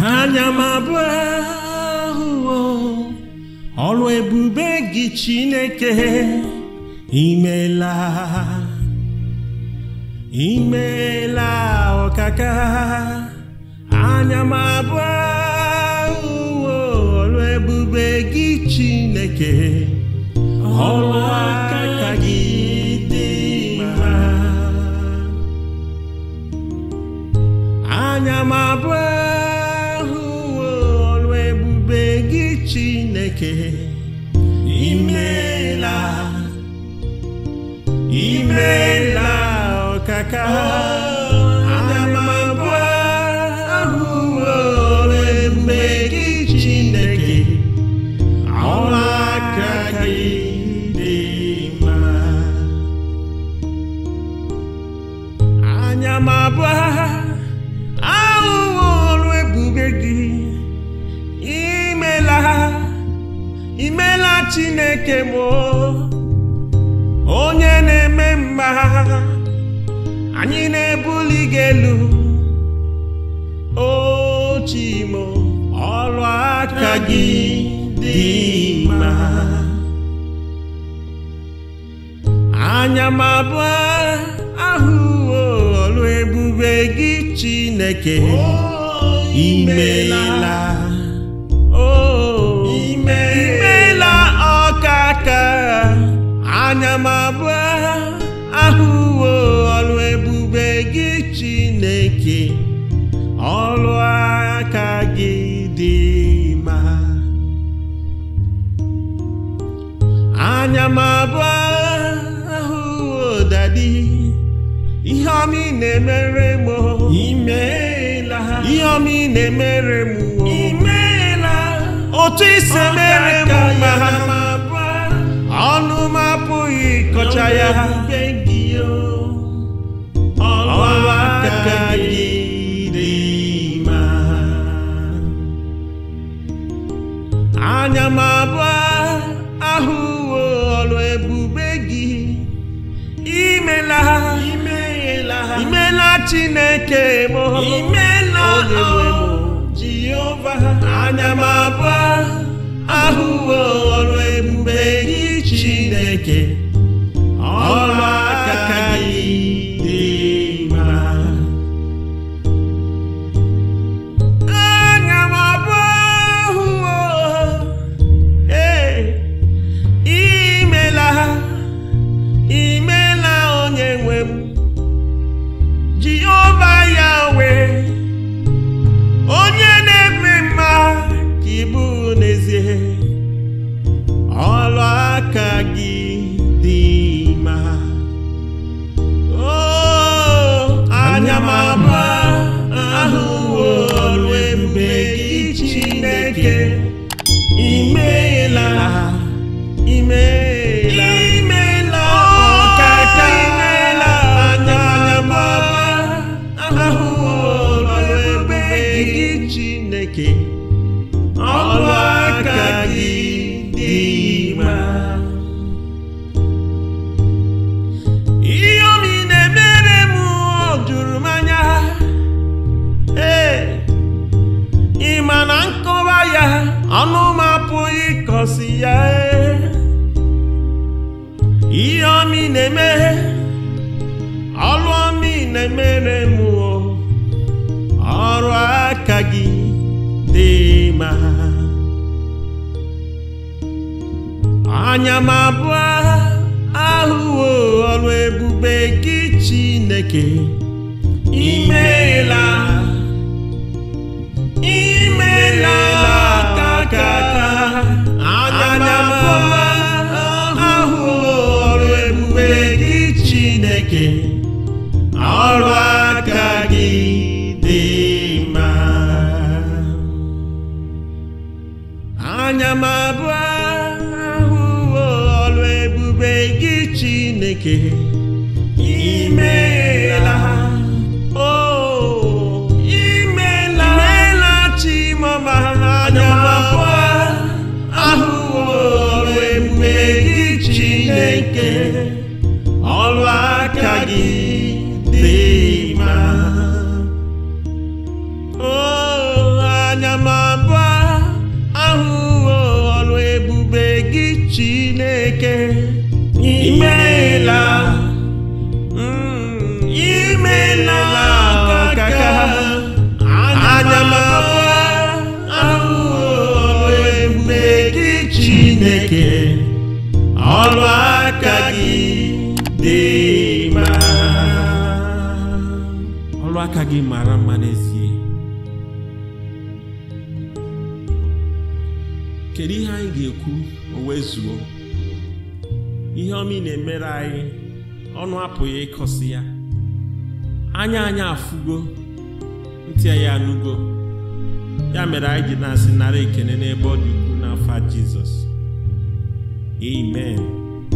anya m abụọ ọrụ ebube gị Chineke imela imela ọkaka anya m abụọ ọrụ ebube gị Chineke ọrụ Chineke imela imela okaka chineke m onye na-eme mma anyị na-ebuli gị elu o ọrụ aka gị dị mma anya ma abụọ ahụ ọrụ ebube gị chineke imeela o anya m abụọ ahụ dadi ihe ọma ị na-emere m imeela ihe ọma ị na-emere m imeela otu ise mere m ma ha ọnụ m apụghị ịkọcha ya imeela ha imeela chineke m imeela oh. jehova anya m abụọ ahụwo ọrụ ebube gị chineke ọrụ ọnụ m apụghị ịkọsi ya ihe omi na-emeghe ọlụ ọmị na-emere m ọrụ aka gị dị ma anya m abụọ ahụwo ọrụ ebube gị Chineke ime anya m abụọ ahụ ọlụ ebube gị Chineke ime ọrụ aka gị mara mma n'ezie kedu ihe anyị ga-ekwu o zuo ihe omi na-emere anyị ọnụ apụghị ịkọsi ya anya anyị afugo ntị anyị ya mere anyị ji na-asị nara ekene n'ebe ọ dị ukwu n'afọ Jizọs Amen.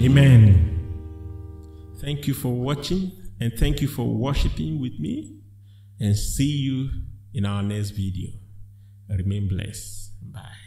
Amen. Thank you for watching and thank you for worshiping with me and see you in our next video. Remain blessed. Bye.